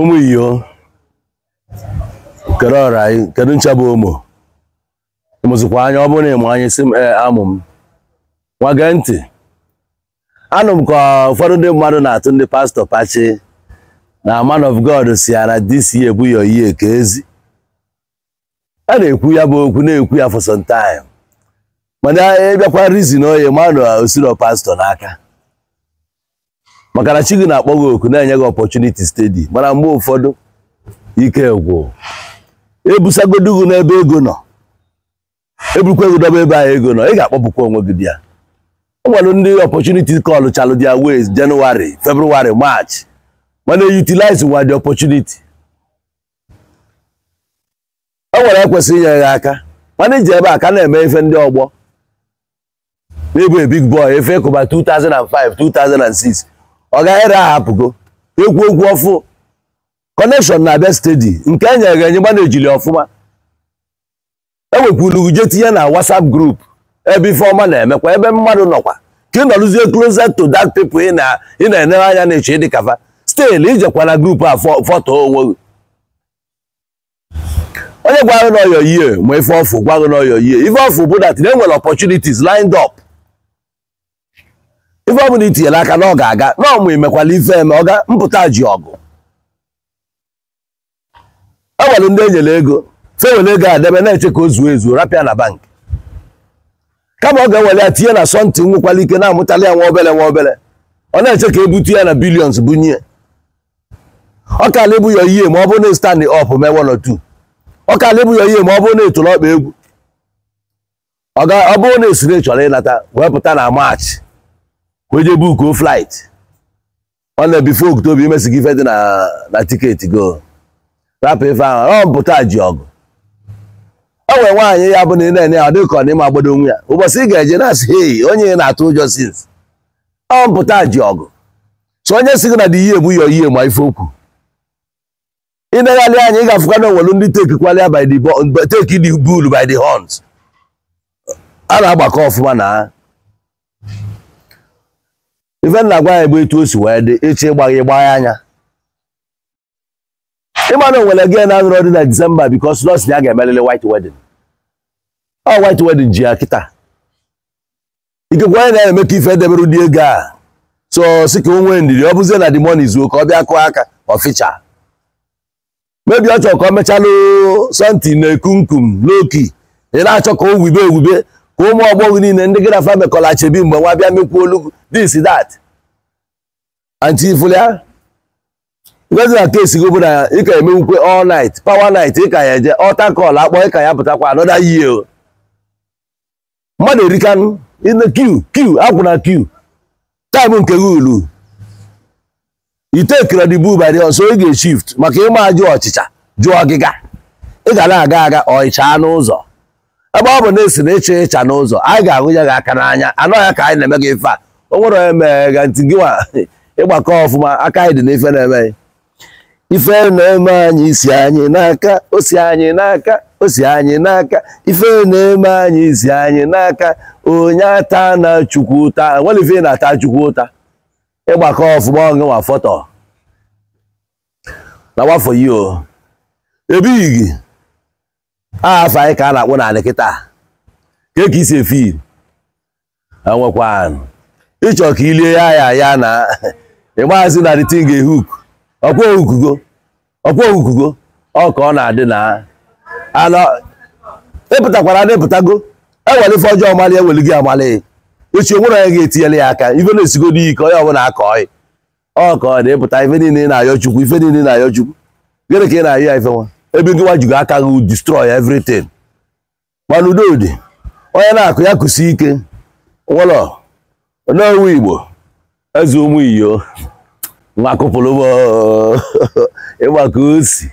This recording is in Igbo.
ụmụ iyo kedu ọra anyị kedu ncha bụ ụmụ ịmụzikwa anya ọ bụrụ na ịmụ anyị si m amụ m nwa ntị anụ m ka ụfọdụ ndị mmadụ na-atụ ndị pastọ pachi na man of god si ara na dc ebu ya oyi ka ezi a na-ekwu ya bụ okwu na-ekwu ya for mana ịbịakwa rizin oye mmadụ osiro pastọ n'aka maka na chi na-akpọ gị oku na-enye gị ọpọchuniti stedi mana mgbe ụfọdụ ike gwụ ebusagodu gị n'ebe ego nọ ebukwa ego dọba ebe ahụ ego nọ ị ga-akpọpụkwa onwe gị bịa o ndị ọpọchuniti kọlụ chalụ dia wes jenụwarị febrụwarị maachị mana eyutilize nwa dị ọpọchuniti o e nwere ekwesịrị inye gị aka mana iji ebe a ka na-eme ife ndị ọgbọ n'ebu big boy efe kụba 2005 2006 ọ gaghịrị ahapụgo ekwu okwu ọfụ kọnekshọn na-abịa stedi nke e nyere enye gba ejili ọfụma ewekwuru uje tinye na WhatsApp group ebe ifeọma na-emekwa ebe mmadụ nọkwa ka ị nọrụzie closer to dak pepụ ị na-enere anya na-eche ịdị kafa stel ijekwana na grupu a foto onwe gị onye gwara n'ọyọ ihe ma ife ọfụ gwara n'ọyọ ihe ife ọfụ bụ dat na enwere opportunities lined up ife ọbụla itinyere aka na ọ ga-aga na ọmụ imekwala ife eme ọ ga mpụta ji ọgụ e nwere ndị enyere ego fewere ego adebe na-eche ka o zuo ezuo rapịa na bank kama ọ ga-ewere ya tinye na sọntị nwekwara ike na-amụtala ya nwa obere nwa obere ọ na-eche ka ebutu ya na bilions bunye ọ kala ebu ya ihe ma ọ bụrụ na e stand up mewonotu ọ kala ebu ya ihe ma ọ bụrụ na etoro ọkpa egwu ọ bụrụ na esiri chọrọ ịnata wee pụta na maachị ka o jee bukuo flight ọ na-ebife oktoba imesi gị ife dị na tiketi go rapụ ife ahụ ọ mpụta ji ọgụ o nwere nwaanyị ya bụ na ị na-enye ya ọ dị ọ n'ime agbado onwe ya ụbọchị ị ga-eje na-asị hei onye ị na-atụ ụjọ sins ọ mpụta ji ọgụ so onye si gị na dị ihe egbu ya oyihe ma ife okwu ị negharị anya ị ga-afụkwa na onwelu ndị tekikwalịa by the teki the bull by the horns a na-agbakọ ọfụma na ha ife nna gwa ya bụ etu o si wee dị echi ịgba gị gbaa anya ịma onwere gị na anụrụ dị na disemba bikos nọọsụ ya ga-emelele white wedding ọ white wedding ji ya kịta ikekwe onye na-eme ka ife edebere ụdị ego a so si ka o nwee ndidi ọ bụzie na the money ka ọ bịa kụọ aka ọficha mebi ọ chọrọ ka ọ mechalụ sọnti na ekunkum n'oki ị na-achọ ka o wube ewube ka ụmụ ọgbọghọ niile ndị gị na fa mekọla achebi mgbe nwa bịa mekwu olugwu this that antifulia ngọzi na kesi gị bụ na ị ka emenwukwe all night power night ị ka ya eje ọta kọl akpọ ị ka ya pụtakwa anọda yie mmadụ erikanụ in q q queue akwụ na q time nke gị ulu ite kredibu bari ọsọ ị ga-eshift maka ịma ajụ ọchịcha jụọ ọgịga ị ga na-aga aga ọịcha n'ụzọ ebe ọ bụ na esi na ịcha ịcha n'ụzọ anyị ga-ahụ ya gị aka n'anya anọ ya ka anyị na-eme gị ife a eh, o nwere onye mee ga ntị gịwa ịgbakọ ọfụma aka anyị dị n'ife na-eme ife na-eme anyị isi anyị n'aka osi anyị n'aka o si anyị n'aka ife na-eme anyị isi anyị n'aka onye ata na chukwu ụta nwere ife na-ata chukwu ụta ịgbakọ ọfụma ọgụ nwa fọtọ na wafọ yi o ebighị afọ anyị ka a na-akpụ na anị kịta ka esi efi enwekwanụ ịchọ ka ilie ya ya ya na ịgbazi na ritin ga-ehu uku ọkwa okugo ọkwa okugo ọ ka ọ na-adị na anọ ịpụtakwara na ịpụtago eweli ife ọjọọ mali eweli gị amali echi onwere onye ga-etinyela ya aka ife na-esigo n'iyi ka onye ọbụla akọ ọyị ọ ka ọ na-ịpụta ife niile na-ayọ chukwu ife niile na-ayọ chukwu gịnị ka ị na-ayọ ya ife nwa ebe gị wajigo aka gị distrọị everything mana udodị onye na-akụ ya kụsi ike nwelọ onye igbo eze ụmụ iyo nwa kụpụrụ ịgbaka osi